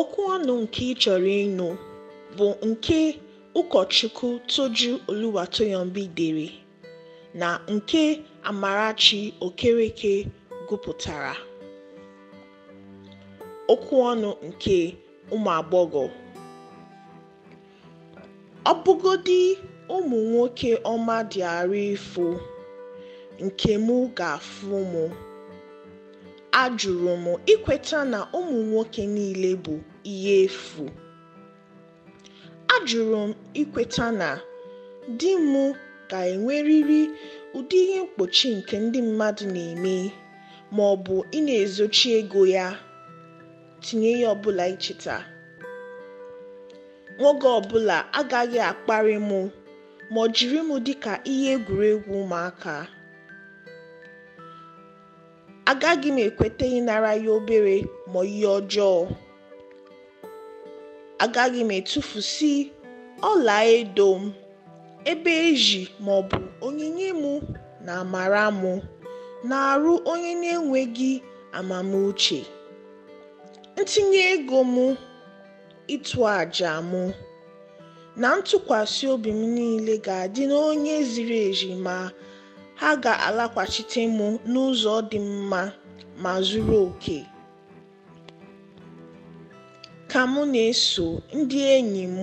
okwu ọnụ nke ị chọrọ ịnụ bụ nke ụkọchukwu Toju Oluwatoyinbi dere na nke Amarachi Okereke gụpụtara okwu ọnụ nke ụmụ agbọghọ ọbụgodi ụmụ nwoke ọma dị arụ ifo nke mụ ga-afụ mụ ajụrụ m ikweta na ụmụ nwoke niile bụ ihe efu ajụrụ m ikweta na di m ga-enwerịrị ụdị ihe mkpuchi nke ndị mmadụ na-eme ma ọ bụ ị na-ezochi ego ya tinye ya ọbụla icheta nwoke ọbụla agaghị akparị m ma ọ jiri m dịka ihe egwuregwu ụmụaka agaghị m ekweta ịnara ya obere ma ihe ọjọọ agaghị m etufusi ọla edo m ebe eji maọbụ onyinye mụ na amara mụ na-arụ onye na-enweghị amamuche ntinye ego m ịtụ àjà mụ na ntụkwasị obi m niile ga-adị n'onye ziri ezi ma ha ga-alakwachite m n'ụzọ dị mma ma zuru oke. Ka m na-eso ndị enyi m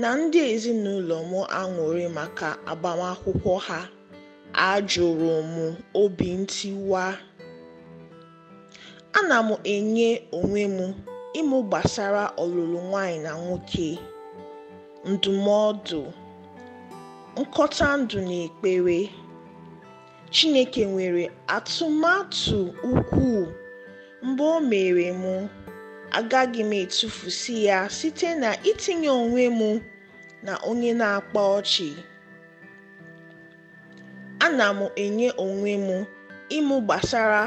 na ndị ezinụlọ m aṅụrị maka agbamakwụkwọ ha, ajụrụ m obi ntiwa, ana m enye onwe m ịmụ gbasara ọlụlụ nwanyị na nwoke, ndụmọdụ, nkọta ndụ na ekpere. Chineke nwere atụmatụ ukwuu, mgbe o mere m, agaghị m etufusi ya site na itinye onwe m na onye na-akpa ọchị. Ana m enye onwe m ịmụ gbasara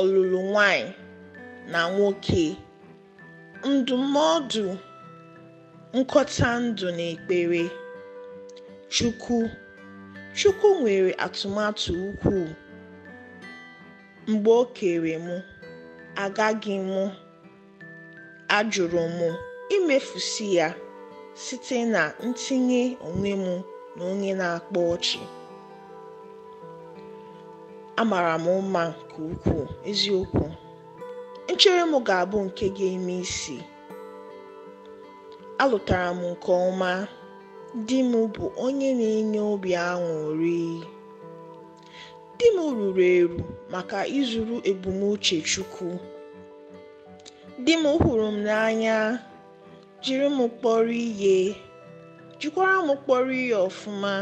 ọlụlụ nwanyị na nwoke, ndụmọdụ, nkọta ndụ na ekpere. Chukwu. Chukwu nwere atụmatụ ukwuu mgbe o kere mụ, agaghị m (ajụrụ m) imefusi ya site na ntinye onwe m na onye na-akpa ọchị, amara m mma nke ukwuu, eziokwu, nchere m ga-abụ nke ga-eme isi, alụtara m nke ọma. di m bụ onye na-enye obi aṅụrị di m ruru eru maka ịzụrụ ebumnuche chukwu di m hụrụ m n'anya jiri m kpọrọ ihe jikwara m kpọrọ ihe ọfụma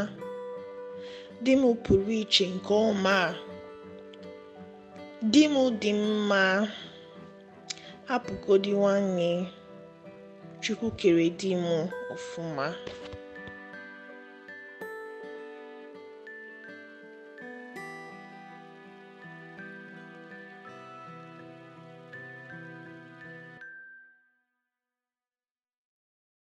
di m pụrụ iche nke ọma di m dị mma hapụgodi nwanne chukwu kere di m ọfụma